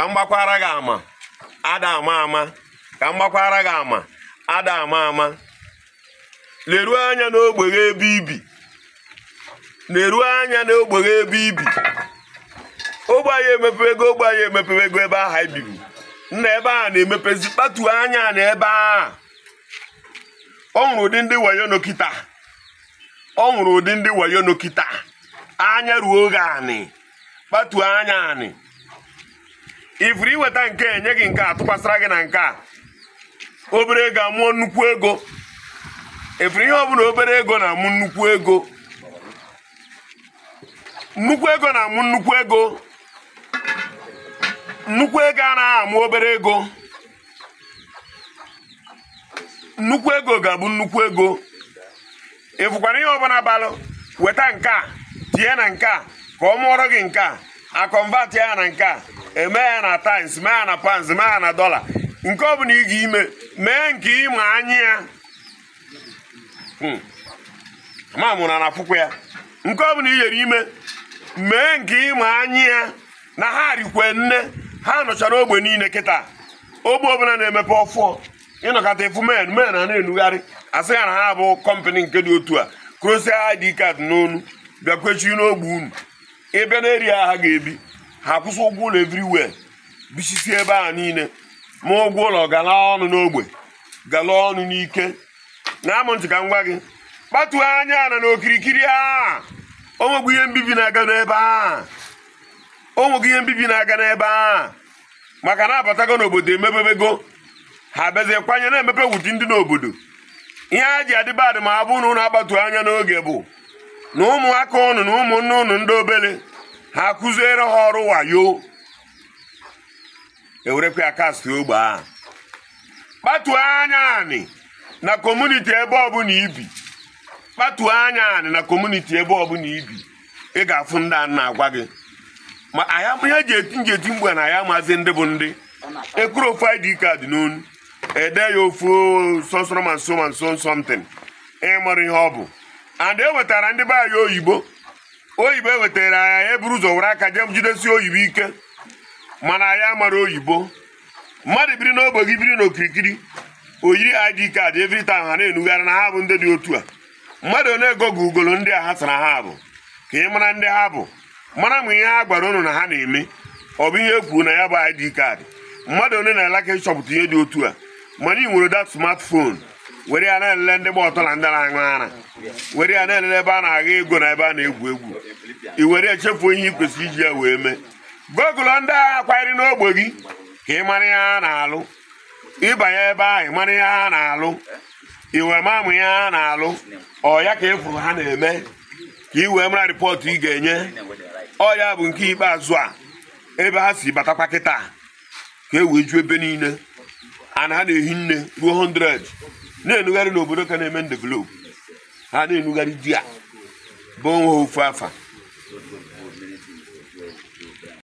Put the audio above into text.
ka m gbakwara gị ama ada ama ama ka m gbakwara gị ama ada ama ama leruo anya n'ogbe gị ebe ibi leruo anya n'ogbe gị ebe ibi ogbe anyị emepewego ogbe anyị emepewego ebe ahụ anyị bibi nna ebe a na-emepezi kpatu anya na ebe a ọ nwụrụ ụdị ndị wayo nokita ọ nwụrụ ụdị ndị wayo anya ruo oge anị kpatuo anya anị ifuru iweta nke enye gị nke a tụkwasịra gị na nke a obere ego amụọ nnukwu ego ifuru ihe ọbụla obere ego na-amụ nnukwu ego nnukwu ego na-amụ nnukwu ego nnukwu ego anaghị amụ obere ego nnukwu ego ga-abụ nnukwu ego ịfụkwara ihe ọbụla balụ weta nke a tie na nke a ka ọ mụọrọ gị nke a ya na nke a eme na times mee na pounds mee ya na dọla nke ọ bụla ị ga ime mee nke ịma anya ya hmm. ma mụrụ na akwụkwọ ya nke ọ bụla ị yere ime mee nke ịma anya ya na ha rikwe nne ha nọchara ogbe niile kịta ogbe ọbụla na-emepe ọfụọ ịnọkọta efu men men a na-enugharị asị ya na ha bụ kọmpani nke dị otu a krosia id card n'onu bịakwechi n'ogbe unu ịbịa n'eri ha ha ga-ebi ha kwụsị ụgwọ ụlọ everywhere bichisi ebe a niile ma ụgwọ ụlọ gala ọnụ n'ogbe gala ọnụ n'ike na-amụ ntị ka m gwa gị kpatuo anya na n'okirikiri a onwegwu ihe mbibi na-aga n'ebe a onwegwu ihe mbibi na-aga n'ebe a maka na abatago n'obodo emebebego ha bezi kwanye na-emepe wuti ndị n'obodo ihe a ji adịbadị ma abụ na ụnụ agbatu anya n'oge bụ na ụmụaka ụnụ na ụmụnne ụnụ ndị obele ha akụziere ha ọrụ wayo ewerekwa ya kasti ogbe ahụ kpatuo anya anị na kọmuniti ebe ọbụla ibi kpatuo anya anị na kọmuniti ebe ọbụla ibi ị ga-afụ ndị a na-agwa gị ma ihe ji eti njeti mgbe na ya maazị ndị bụ ndị ekwuru ofu id kaadị n'onu ede ya ofu sọsọrọ ma nso ma nso somtin ịmụrụ ihe ọ bụ and e wetara ndị baa ya oyibo oyibo ewetara anya ya eburu ụzọ were aka jee jidesi oyibo ike mana ya mara oyibo mmadụ biri n'ogbe gị biri n'okirikiri oyiri id kaadị evita ha na-enugharị na ha bụ ndị dị otu a mmadụ one ego gị ugolo ndị a ha sara ha bụ ka ị mara ndị ha bụ mara ma ihe ha gwara unu na ha na-eme ọ bụ ihe e na ya bụ id kaadị mmadụ one na-elaka ịchọpụta ihe dị otu a mana ị nwere dat smartphone were ya na-elele ndị gba ọtọ na ndị na-aṅụ ara were ya na-elele ebe a na-agha ego na ebe a na-egwu egwu i were echefu ihe ị iji ya wee mee gogụlọ ndị agha kwanyere n'ogbe gị ka ị mara ha na-alụ ịbanye ebe ahụ ị mara ihe ha na-alụ iwe mamụ ya ha na-alụ ọ ya ka efuru ha na-eme ka ị wee mara rịpọtụ ị ga-enye ọ ya bụ nke ikpeazụ a ebe ha si batakwa kịta ka e wee ju ebe niile ana ha na-ehi nne ruo na-enugharị n'obodo ka na-eme ndevelopu ha na-enugharị di a bụ nwa ofu afa